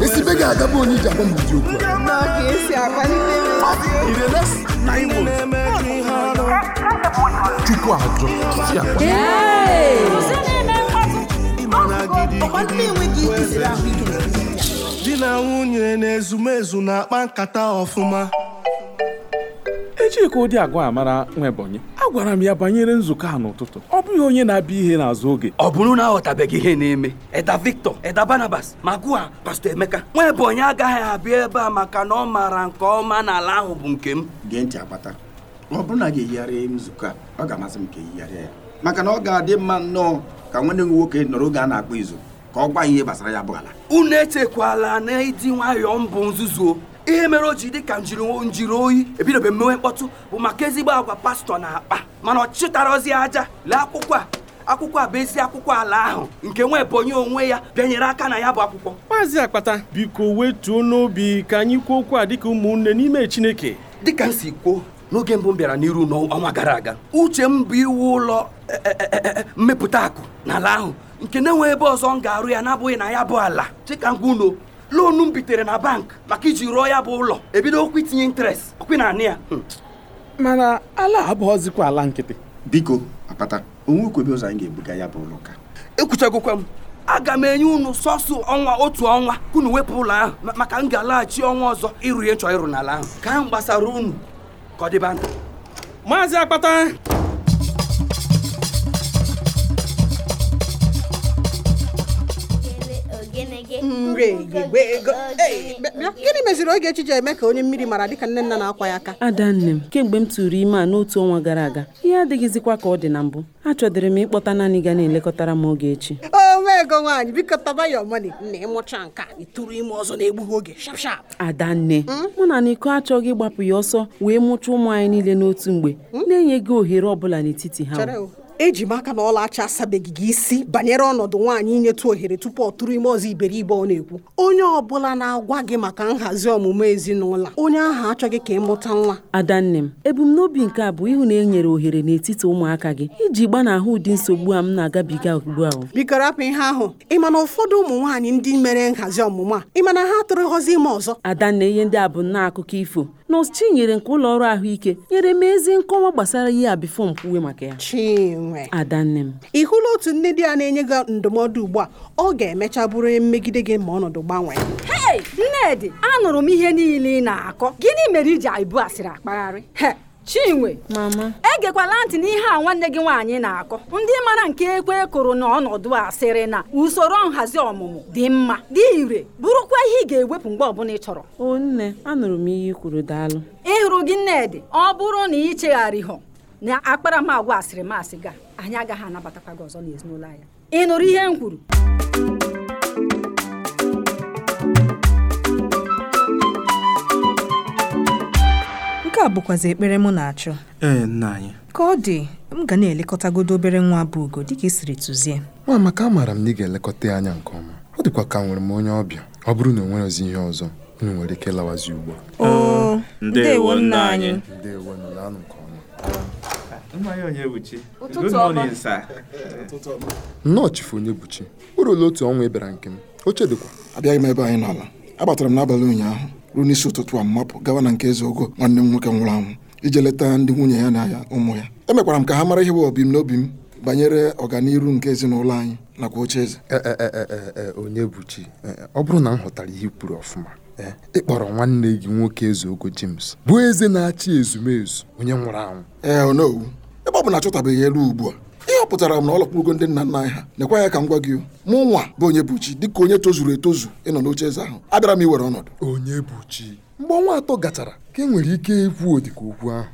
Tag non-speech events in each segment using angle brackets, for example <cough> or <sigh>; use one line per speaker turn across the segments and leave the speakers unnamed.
esibe ga-agabụ onye iji m ụdị okwu chukwu ajọ di na nwunye na ezumezu na-akpa nkata ọfụma echi ka ụdị agwa a mara agwara m ya banyere nzukọ a n'ụtụtụ ọ bụghị onye na-abịa ihe n'azụ oge ọ bụrụ na aghọtabeghị ihe na-eme Eda Victor Eda Barnabas ma gụọ Pastor
Emeka nwa Ebonyi agaghị abịa ebe a maka na ọ maara nke ọma na ala ahụ bụ nke m gee ntị akpata ọ bụrụ na ga-eyigharịa nzukọ a ọ ga-amasị m ka eyigharịa ya maka na ọ ga-adị mma nnọọ ka nwanne m nwoke nọrọ oge a na-akpọ izu ka ọ gwa ihe gbasara ya bụ ala unu echekwala na ịdị nwayọọ mbụ nzuzu ihe mere o ji dị ka njiri oyi ebidobe mmewe mkpọtụ bụ maka ezigbo agwa pastọ na akpa mana ọ ozi aja lee akwụkwọ a akwụkwọ a bụ ezi akwụkwọ ala ahụ nke nwa ebonye onwe ya bịanyere aka na ya bụ akwụkwọ maazị akpata biko wetuo n'obi ka anyị kwuo okwu a dịka ụmụnne n'ime chineke dịka m si kwuo n'oge mbụ m bịara n'iru n'ọnwa gara aga uche m bụ iwu ụlọ e, e, e, mmepụta akụ na ala ahụ nke na-enwe ebe ọzọ m ga-arụ ya na-abụghị na ya bụ ala chika ngwa loonu m bitere na bank maka iji rụọ ya bụ ụlọ ebido okwu itinye interest okwi na anị ya hmm. mana ala abụghọzikwa ala nkịtị biko akpata onwekwebe ụzọ anyị ga-ebuga ya bụ ụlọ ka ekwuchagokwa m aga m enye unu sọsọ ọnwa otu ọnwa kunu unu wepụ ụlọ ahụ maka m ga-alaghachi ọnwa ọzọ ịrụ ihe chọọ ịrụ n'ala ahụ ka m gbasara unu ka ọ dịba maazị akpata
gịnị meziri oge echi eme ka onye mmiri mara dịka nne nna na-akwa ya aka ada nne m kemgbe m tụrụ ime a n'otu ọnwa gara aga ihe adịghịzikwa ka ọ dị na mbụ achọdịrị m ịkpọta naanị ga na-elekọtara m oge echi onwe ego nwaanyị biko taba ya ọmani na ịmụcha nke a ịtụrụ
ime ọzọ na-egbughị oge shapshap
ada nne hmm? mụ na n'iko achọghị ịgbapụ ya ọsọ wee mụchaa ụmụ anyị niile n'otu mgbe hmm? na enye gị ohere ọ bụla n'etiti ha eji m aka na acha asabeghị gị isi banyere ọnọdụ nwaanyị inyetụ ohere tupu ọ tụrụ ime ọzọ iberibe ọ na-ekwu onye ọ bụla na-agwa gị maka nhazi ọmụmụ ezinụlọ onye ahụ achọghị ka ị mụta nwa adanne m ebumnobi nke a bụ ịhụ na e nyere ohere n'etiti ụmụaka gị iji gbanahụ ụdị nsogbu a m na-agabiga ugbu a biko rapụ ihe ahụ ịma na ụfọdụ ụmụ nwaanyị ndị mere nhazi ọmụmụ a ịma na ha tụrụ nghọzi ime ọzọ adanne ihe ndị a bụ nna akụkọ ifo nọọsụ nyere nke ụlọ ọrụ ahụike nyere m ezi nkọwa gbasara ihe a bifo m maka ya Chinwe adanne m ị hụla otu nne di ya na-enye gị ndụmọdụ ugbu a ọ ga-emecha bụrụ mmegide gị ma ọnọdụ gbanwee
nnedi anụrụ m ihe niile ị na-akọ gịnị mere iji ibu asịrị akpagharị chinwe egekwala ntị n'ihe a nwanne gị nwaanyị na-akọ ndị mara nke ekwe kụrụ n'ọnọdụ ọnọdụ a sịrị na usoro nhazi ọmụmụ dị mma dị ire bụrụkwa ihe ị ga-ewepụ mgbe ọbụla ị chọrọ o anụrụ m ihe ị kwuru daalụ ịhụrụ gị nnedị ọ bụrụ na ị hụ na akparamagwa asịrị masị ga anyị agaghị anabatakwa gị ọzọ n'ezinụlọ anyị ị nụrụ ihe m kwuru
nke a bụkwazi ekpere m na-achọ ee nna ka ọ dị m ga na-elekọtagodo obere nwa bụ ugo dịka ị siri tụzie
nwa amaka amaara m na ị ga-elekọta ya anya nke ọma ọ dịkwa ka nwere m onye ọbịa ọ bụrụ na o ozi ihe ọzọ unu nwere ike lawazi ugbu a oh, anyị nke ọma nnọọ chifu onye buchi o ruola otu ọnwa ị bịara nke m oche dịkwa abịaghị m ebe anyị n'ala agbatara m n'abalị ụnyaahụ ruo n'isi ụtụtụ a mmapụ gawa na nke eze ogo nwanne m nwoke nwụrụ anwụ ije leta ndị nwunye ya na ya ụmụ ya emekwara m ka ha mara ihe bụ n'obi m banyere ọganihu nke ezinụlọ anyị nakwa oche eze eh, eh, eh, onye bụ chi ọ bụrụ na m ghọtara ihe kwuru ọfụma ịkpọrọ nwanne gị nwoke eze ogo James bụ eze na-achị ezumezu onye nwụrụ anwụ ee onowu oh ebe ọ bụ na achọtabeghị elu ugbu a pụtara m na ọ lọkpụgo ndị nna nna anyị ha nekwa ya ka m gwa gị mụ nwa bụ onye bụchi dịka onye tozuru etozu ịnọ n'oche eze ahụ abịara m iwere ọnọdụ onye bụchi mgbe ọnwa atọ gachara ka e nwere ike ikwu odika okwu ahụ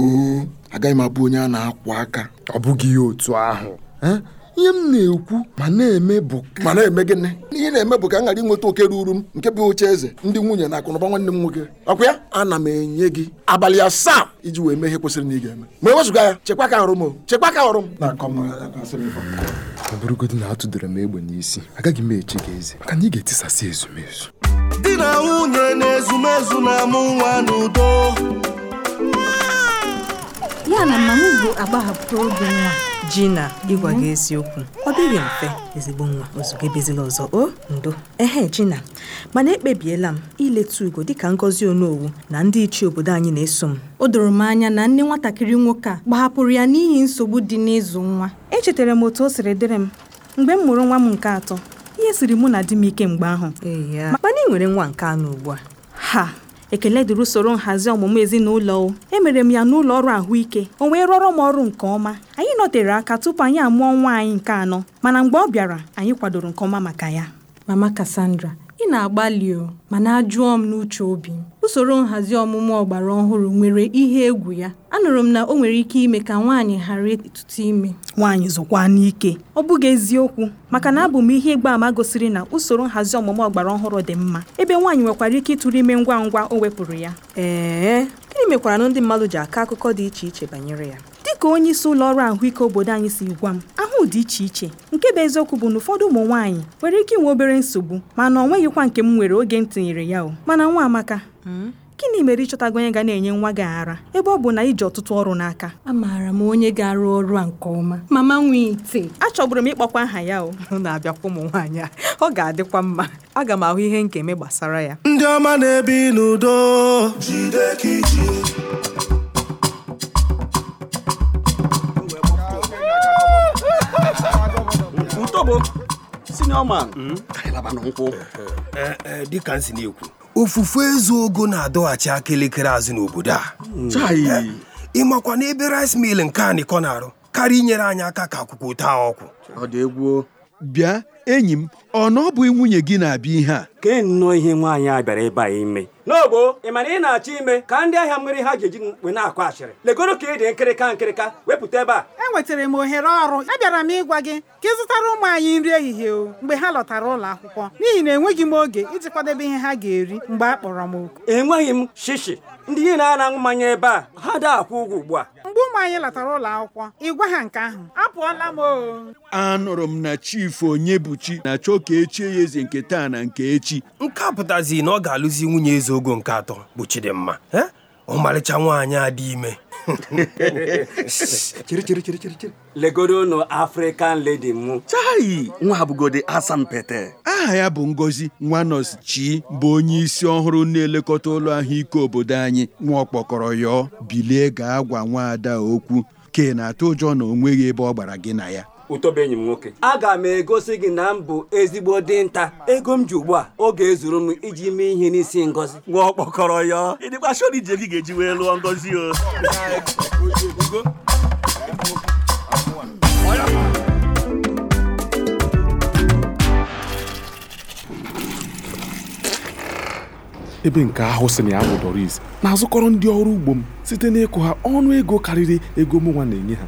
oh, agaghị m abụ onye a na-akwụ aka ọ bụghị ihe otu ahụ eh? ihe m na-ekwu ma na-eme bụ ma na-eme gịnị ihe na-eme bụ ka m ghara inweta oke ruru m nke bụ oche eze ndị nwunye na akụnụba nwanne m nwoke ọkwa ya ana m enye gị abalị asaa iji wee mee ihe kwesịrị na ị ga-eme ma e wezụga ya chekwa ka ọrụ m chekwa ka ọrụ m ọ bụrụgodị na atụdere m egbe n'isi agaghị m eche gị eze maka na ị ga-etisasị ezumezu
di na nwunye na ezumezu na-amụ nwa n'udo ya na mama bụ agbahapụta oge nwa ji na ịgwa gị eziokwu ọ dịghị mfe ezigbo nwa ozugbo ebezila ọzọ o ndo ehe Jina mana ekpebiela m ileta ugo dịka ngọzi onowu na ndị ichie obodo anyị na-eso m o doro m anya na nne nwatakịrị nwoke a gbahapụrụ ya n'ihi nsogbu dị n'ịzụ nwa echetara m otu o siri dịrị m mgbe m mụrụ nwa m nke atọ ihe siri mụ na di m ike mgbe ahụ mana ị nwere nwa nke anọ ugbu a ha ekele dịrị usoro nhazi ọmụmụ ezinụlọ emere m ya n'ụlọ ọrụ ahụike o wee rọrọ m ọrụ nke ọma anyị nọtere aka tupu anyị amụọ nwa anyị nke anọ mana mgbe ọ bịara anyị kwadoro nke ọma maka ya mama Cassandra Ị na-agbalị o, na ajụọ m n'uche obi m, usoro nhazi ọmụmụ ọgbara ọhụrụ nwere ihe egwu ya. Anụrụ m na ọ nwere ike ime ka nwaanyị ghara ịtụtụ ime. Nwaanyị zụkwa n'ike. Ọ bụghị eziokwu, maka na abụ m ihe ama gosiri na usoro nhazi ọmụmụ ọgbara ọhụrụ dị mma, ebe nwaanyị nwekwara ike ịtụrụ ime ngwa ngwa o wepụrụ ya. Ee, gịnị mekwara na ndị mmadụ ji akọ akụkọ dị iche iche banyere ya? ka onye isi ụlọ ọrụ ahụike obodo anyị si gwa m ahụ dị iche iche nke bụ eziokwu bụ na ụfọdụ ụmụ nwaanyị nwere ike inwe obere nsogbu mana ọ nweghịkwa nke m nwere oge m tinyere ya o mana nwa amaka hmm? gịnị mere ịchọtago onye ga na-enye nwa gị ara ebe ọ bụ na iji ọtụtụ ọrụ n'aka amaara m onye ga-arụ ọrụ a nke ọma mama nwee ite m ịkpọkwa aha ya o na-abịakwa ụmụ nwaanyị a ọ ga-adịkwa mma aga m ahụ ihe nkeme gbasara ya
ndị ọma na-ebi n'udo
bụ senior man, hmm? arịlaba na nkwụ. Eh, eh, eh, Dịka nsi na-ekwu. Ofufe ezu ogo na-adọghachi elekere azụ n'obodo a. Hmm. Ịmakwa n'ebe ebe rice mil nke a na-arụ karịa inyere anyị aka ka akwụkwọ taa ọkwụ. bịa enyi m ọ na ọ nwunye gị na-abịa ihe a kee nnọọ ihe nwaanyị a bịara ebe a ime n'ogbo ị mara ị na-achọ ime ka ndị ahịa mmiri ha ji eji na-akụ achịrị? legoro ka ị dị nkịrịka nkịrịka wepụta ebe a enwetara m ohere ọrụ abịara m
ịgwa gị ka ị zụtara ụmụ anyị nri ehihie o mgbe ha lọtara ụlọ akwụkwọ n'ihi na enweghị m oge iji kwadebe ihe ha ga-eri mgbe a kpọrọ m oku
enweghị m shishi ndị niile na-aṅụ mmanya ebe a ha daa akwụ ụgwọ ugbu a
mgbe ụmụ anyị latara ụlọ akwụkwọ ịgwa ha nke ahụ apụọla m
anụrụ m na chifu buchi na-achọ ka echie ya eze nke taa na nke echi nke a pụtazi na ọ ga-alụzi nwunye eze ogo nke atọ bụ Chidimma ọmarịcha nwaanyị a dị ime <laughs> chiri chiri chiri chiri chiri legodo nụ afrịkan ledi mụ chai nwa abụgodi asampete aha ya bụ ngozi nwanos chi bụ onye isi ọhụrụ na-elekọta ụlọ ahụike obodo anyị nwa ọkpọkọrọ yọọ bilie gaa gwa nwaada okwu ke na-atụ ụjọ na o nweghị ebe ọ gbara gị na ya ụtọbe enyi m nwoke aga m egosi gị na m bụ ezigbo dinta ego m ji ugbu a oge ezuru m iji mee ihe n'isi ngozi nwa ọkpọkọrọ ya ịdịkwa gị ga-eji wee lụọ ngozi
o ebe nke ahụ si na ya bụ Doris na-azụkọrọ ndị ọrụ ugbo m site n'ịkụ ha ọnụ ego karịrị ego mụnwa na-enye ha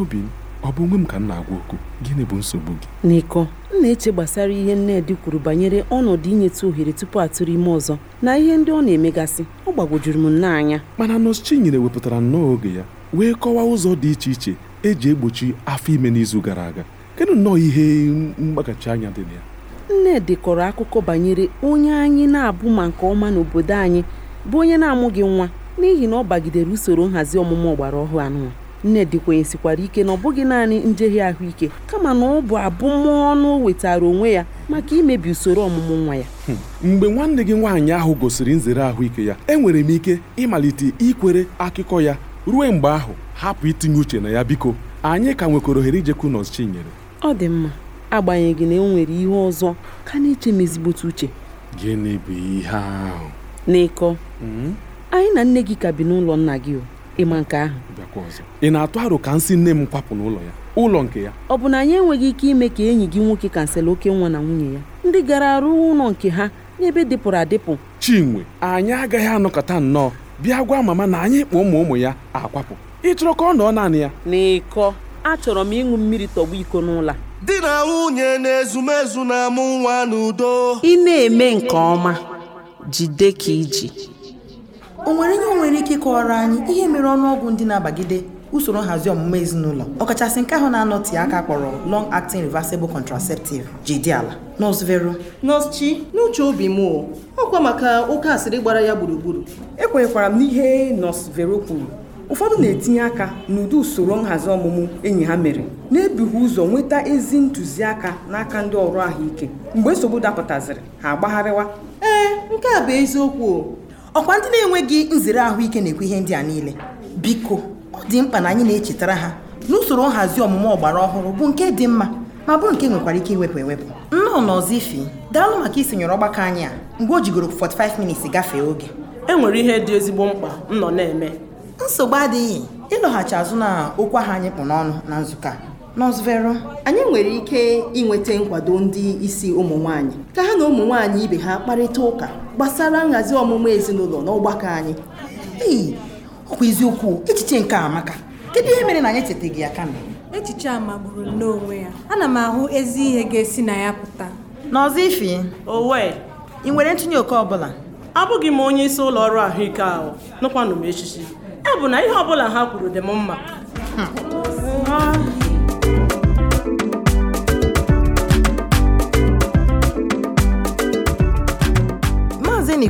obi m ọ bụ onwe m ka m na-agwa okwu gịnị bụ nsogbu gị
niko m na-eche gbasara ihe nnedi kwuru banyere ọnọdụ inyetụ ohere tupu atụrụ ime ọzọ na ihe ndị ọ na-emegasị ọ gbagwojuru m nnọọ anya
mana nọọsụ wepụtara nnọọ oge ya wee kọwaa ụzọ dị iche iche eji egbochi afọ ime n'izu gara aga kedụ nnọọ ihe mgbaghachi anya dị na ya
nnedi kọrọ akụkọ banyere onye anyị na-abụ ma nke ọma n'obodo anyị bụ onye na-amụghị nwa n'ihi na ọ bagidere usoro nhazi ọmụmụ ọgbara ọhụụ anụnwa nnedi kwenyesikwara ike na ọ bụghị naanị njehie ahụike kama na ọ bụ abụmọnụ wetara onwe ya maka imebi usoro ọmụmụ nwa ya
hmm. mgbe nwanne gị nwaanyị ahụ gosiri nzere ahụike ya enwere m ike ịmalite ikwere akụkọ ya ruo mgbe ahụ hapụ itinye uche na ya biko anyị ka nwekwara ohere ijekwu
ọ dị mma agbanyeghị na enwere ihe ọzọ ka na-eche m ezigbote uche
gịnị bụ ihe ahụ n'ịkọ hmm?
anyị na nne gị ka bi n'ụlọ nna gị o ịma nke ahụ
ị na-atụ aro ka nsị nne m kwapụ n'ụlọ ya ụlọ nke ya
ọ bụ na anyị enweghị ike ime ka enyi gị nwoke kansel oke nwa na nwunye ya ndị gara arụ ụlọ nke ha n'ebe dịpụrụ adịpụ
chinwe anyị agaghị anọkọta nnọọ bịa gwa mama na anyị kpọ ụmụ ụmụ ya akwapụ ịchọrọ ka ọ nọọ naanị ya
n'ịkọ achọrọ m ịṅụ mmiri tọgbu iko n'ụlọ
di na nwunye na-ezumezu na-amụ nwa n'udo ị na-eme
nke ọma jide ka iji o nwere ihe o nwere ike ịkọwara
anyị ihe mere ọnụọgwụ ndị na-abagide usoro nhazi ọmụmụ ezinụlọ ọkachasị nke ahụ na-anọte aka kpọrọ long acting reversible contraceptive ji dị ala Nọs Vero nọọsụ Chi n'uche obi m ọkwa maka oke asịrị gbara ya gburugburu ekwenyekwara m n'ihe nọs Vero kwuru ụfọdụ na-etinye aka n'ụdị usoro nhazi ọmụmụ enyi ha mere na-ebughị ụzọ nweta ezi ntụziaka n'aka ndị ọrụ ahụike mgbe nsogbu dapụtaziri ha agbagharịwa ee nke a bụ eziokwu ọkwa ndị na-enweghị nzere ahụike na-ekwu ihe ndị a niile biko ọ dị mkpa na anyị na-echetara ha n'usoro nhazi ọmụmụ ọgbara ọhụrụ bụ nke dị mma ma bụrụ nke nwekwara ike iwepụ ewepụ nnọọ n'ọzọ ifi daalụ maka isonyere ọgbakọ anyị a mgbe o jigoro 45 minits gafee oge e nwere ihe dị ezigbo mkpa nnọ na-eme nsogbu adịghị ịlọghachi azụ na okwu ahụ anyị kpụ n'ọnụ na nzukọ a Nọs anyị nwere ike inweta nkwado ndị isi ụmụ nwanyị ka ha na ụmụ nwanyị ibe ha kparịta ụka gbasara nhazi ọmụmụ ezinụlọ n'ọgbakọ anyị. ọkwa eziokwu echiche nke amaka
kedu ihe mere na anyị echetaghị ya kama echiche a magburu n'onwe ya ana m ahụ ezi ihe ga-esi na ya pụta n'ọzọ ifi
owe ị nwere ntinye oke ọbụla abụghị m onye isi ụlọ ọrụ ahụike ahụ nụkwanụ m echichi ọ bụ na ihe ọbụla ha kwuru dị m mma
hmm.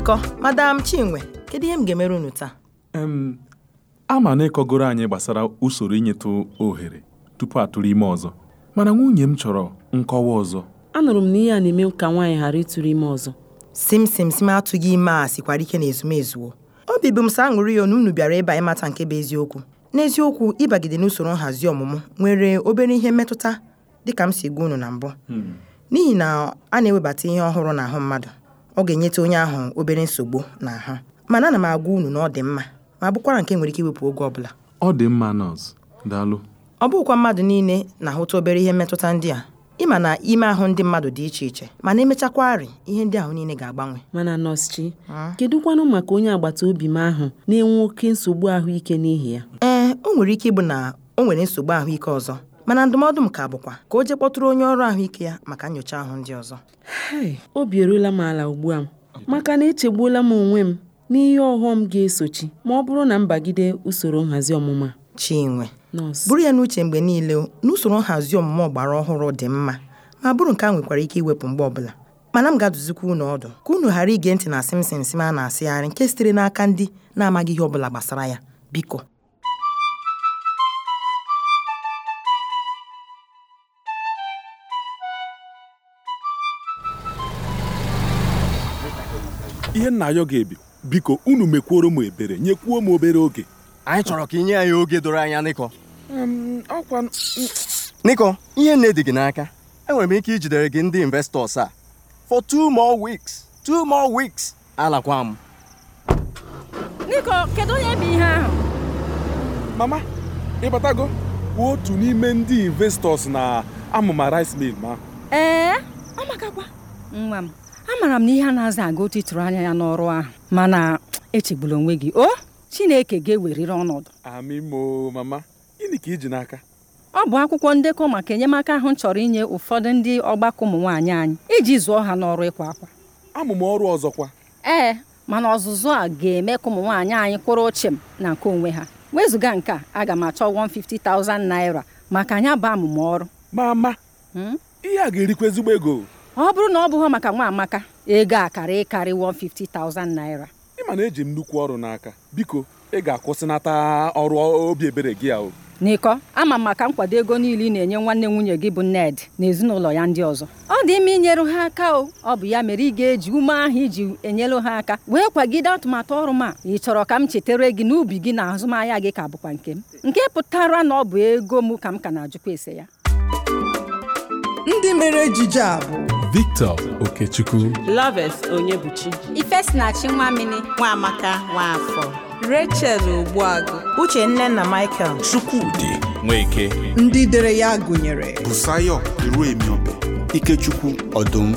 njikọ madam chinwe kedu ihe m ga-emere unu taa
a na ịkọgoro anyị gbasara usoro inyetụ ohere tupu atụrụ ime ọzọ mana nwunye m chọrọ nkọwa ọzọ
anụrụ m na ihe a na-eme ka nwaanyị ghara ịtụrụ ime ọzọ
sim sim sim atụghị ime a sikwara ike na ezumezuo obi bụ m sa aṅụrị ya na unu bịara ịba ịmata nke bụ eziokwu n'eziokwu ịbagide n'usoro nhazi ọmụmụ nwere obere ihe mmetụta dịka m si gwa unu na mbụ hmm. n'ihi na a na-ewebata ihe ọhụrụ n'ahụ mmadụ ọ ga-enyeta onye ahụ obere nsogbu na ahụ mana ana m agwa unu na ọ dị mma ma bụkwara nke
nwere ike iwepụ oge ọbụla ọ dị mma daalụ
ọ bụkwa mmadụ niile na-ahụta obere ihe mmetụta ndị a ịma na ime ahụ ndị mmadụ dị iche iche mana emechakwarị ihe ndị ahụ niile ga-agbanwe mana nọọsụ chi maka onye agbata obi m ahụ na-enwe oke nsogbu ahụike n'ihi ya ee o nwere ike ịbụ na o nwere nsogbu ahụike ọzọ mana ndụmọdụ m ka bụkwa
ka o jee kpọtụrụ onye ọrụ ahụike ya maka nyocha ahụ ndị ọzọ obi eruola m ala ugbu a maka na echegbuola m onwe m n'ihe ọghọm ga-esochi ma ọ bụrụ na m bagide
usoro nhazi ọmụma chinwe bụrụ ya n'uche mgbe niile na usoro nhazi ọmụma ọgbara ọhụrụ dị mma ma bụrụ nke a nwekwara ike iwepụ mgbe ọbụla mana m ga-adụzikwa unu ọdụ ka unu ghara ige ntị na simsim sim a na-asịgharị nke sitere n'aka ndị na-amaghị ihe ọbụla gbasara ya biko
ihe nna ya ga-ebi biko unu mekwuoro m ebere nyekwuo m obere oge anyị chọrọ ka inye anyị oge doro anya nịkọ ọkwa nịkọ ihe nne dị gị n'aka enwere m ike ijidere gị ndị investọs a for two more weeks two more weeks alakwa m
onye bụ ihe ahụ
mama ịbatago otu n'ime ndị investọs na amụma rice mill ma
ee ọ nwa m amaara m na ihe a na-aza aga otu ịtụrụ anya ya n'ọrụ ahụ mana echegbula onwe gị o Chineke ga-eweriri ọnọdụ
mama gịnị ka
ọ bụ akwụkwọ ndekọ maka enyemaka ahụ chọrọ inye ụfọdụ ndị ọgbakọ ụmụnwaanyị anyị iji zụọ ha n'ọrụ ịkwa akwa amụma ọrụ ọzọkwa ee mana ọzụzụ a ga-eme ka ụmụ nwaanyị anyị kwụrụ ochim na nke onwe ha wezụga nke a aga m achọ 150,000 naira maka anya bụ amụma ọrụ mama
hmm? ihe a ga-erikwa ezigbo ego
ọ bụrụ na ọ bụghị maka nwa amaka ego akara ịkarị 150,000 naira
ị ma na eji m nnukwu ọrụ n'aka biko ị ga-akwụsịnata ọrụ obi ebere gị ahụ
n'ịkọ ama m maka nkwado ego niile ị na-enye nwanne nwunye gị bụ Ned na ezinụlọ ya ndị ọzọ ọ dị ime inyere ha aka o ọ bụ ya mere ị ga-eji ume ahụ iji enyelu ha aka wee kwagide atụmatụ ọrụ m a ị chọrọ ka m chetere gị n'ubi gị na azụmahịa gị ka bụkwa nke m nke pụtara na ọ bụ ego m ka m ka na-ajụkwa ese ya ndị mere ejije a bụ
Victor Okechukwu
Loves
Onyebuchi Ifesinachi Nwamini Nwamaka Nwafọ Rachel
Ogbuagụ nne na Michael Chukwudi Nweke ndị dere ya gụnyere
Busayo Iruemiobe Ikechukwu Ọdụm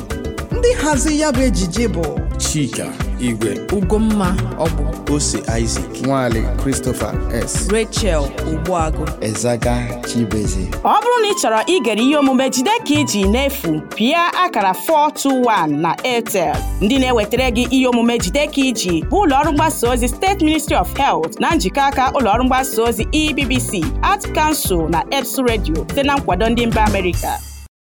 ndị hazi ya bụ ejije
bụ Chika Igwe Ugomma Ọbụ Ose Isaac Nwale Christopher S Rachel Ogbuagụ Ezaga Chibeze
ọ bụrụ na ị chọrọ igere ihe omume jide ka iji n'efu pịa akara 421 na Airtel ndị na-ewetara gị ihe omume jide ka iji bụ ụlọọrụ mgbasa ozi steeti Ministry of Health na njikọ aka ụlọọrụ mgbasa ozi EBBC Art Council na EBS redio site na nkwado ndị mba Amerịka